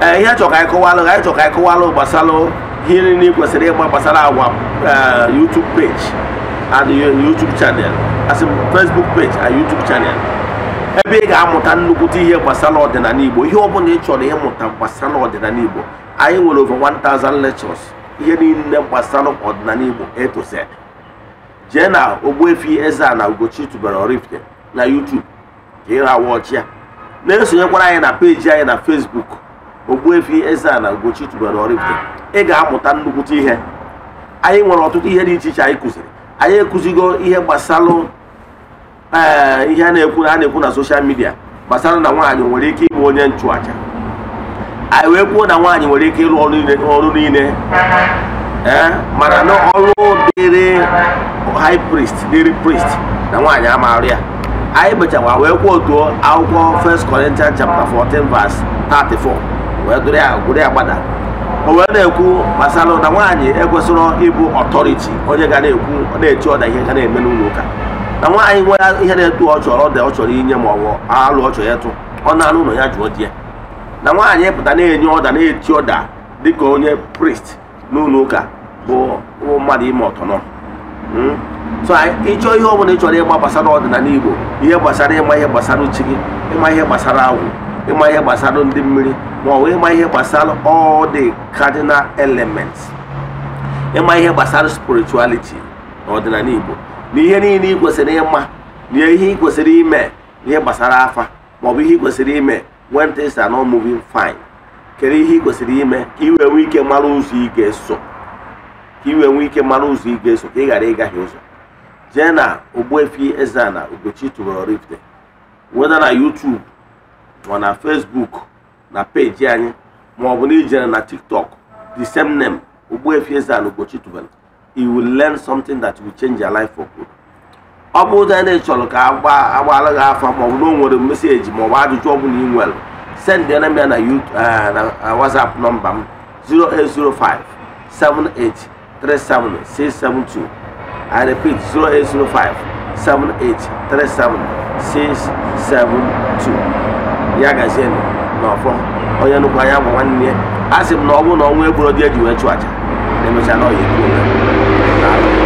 Eh, ihe achọrọ ka anyị ka anyị kọwalụ gbasara ihe kwesịrị ịgba gbasara agwa eh, YouTube page and YouTube channel Facebook page and YouTube channel ebe ị ga-amụta nnukwute ihe gbasara ọdịnala Igbo ihe ọ bụla ị chọrọ ịmụta gbasara ọdịnala Igbo anyị nwere over 1000 lectures ihe niile gbasara ọdịnala Igbo A jee na Ogbuefi eze na Ugochi tubelu na YouTube ka ị ha ya na-esonyekwara anyị na peji anyị na Facebook Ogbuefi Eze-Ana Ugochi tubelu Oraifite ị ga-amụta nnukwute ihe anyị nwere ọtụtụ ihe dị iche iche anyị kụziri anyị ekụzigo ihe gbasara ee eh, ihe a na-ekwu a na-ekwu na soshal midia gbasara na nwaanyị nwere ike ịbụ onye nchụaja anyị wee kwuo na nwaanyị nwere ike ịrụ ọrụ niile ee eh, mana na ọrụ dịrị high priest dịrị priest na nwaanyị amarụ ya anyị bechakwa wee kwuo otuo akwụkwọ 1 Corinthians chapter 14 verse 34 wee dụrụ ya gwụrụ ya gbada o wee na-ekwu gbasara na nwaanyị ekwesịrọ ịbụ ọtọriti onye ga na-ekwu na-eche ọda ihe ga na-eme n'ụlọ ụka na nwaanyị nwere ihe na-etu ọ ọda ọ chọrọ inye ma ọ bụ alụ ọ ya tụ ọ na-alụ ụlọ ya jụọ di ya na nwaanyị pụta na-enye ọda na-eti ọda dị ka onye prist n'ụlọ ụka bụ mmadụ ime ọtọnọ hmm? so ịchọ ihe ọ bụla ị chọrọ ịgba gbasara ọdịnala Igbo ihe gbasara ịma ihe gbasara uchi gị ịma ihe gbasara agwụ ịma ihe gbasara ndị mmiri ma ọ bụ ịma ihe gbasara all the cardinal elements ịma ihe gbasara spirituality na ọdịnala Igbo na ihe niile ị kwesịrị ịma na ihe ị kwesịrị ime na ihe gbasara afa ma ọ bụ ihe ị kwesịrị ime when things an not moving fine kedu ihe ị kwesịrị ime ka ị wee nwee ike mara ụzọ ị ga-eso ka ị wee nwee ike mara ụzọ ị ga-eso ka ị ghara ịgaghị ụzọ jee na Ogbuefi eze a na tubelu Oraifite weda na YouTube ma na Facebook na peji anyị ma ọ bụ na ijere na TikTok the same name Ogbuefi Eze-Ana Ugochi tubelu you will learn something that will change your life for good. ọ bụrụ na ị chọrọ ka agbaala gị afa ma ọ bụ na o nwere meseji ma ọ bụ ajụjụ ọbụla ị nwere send ya na na eh, eh, WhatsApp nọmba m 0805 7837672 I repeat 0805 7837672 ya gazie na ọfọ onye nnukwu anya bụ nwanne ya a sị m na ọ bụrụ na ọnwa egboro di eji wee chụ aja na-emecha na ọya egburu